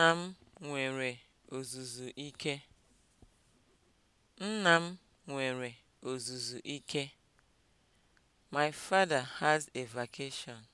Nna m nwere ozuzu ike. Nna My father has a vacation.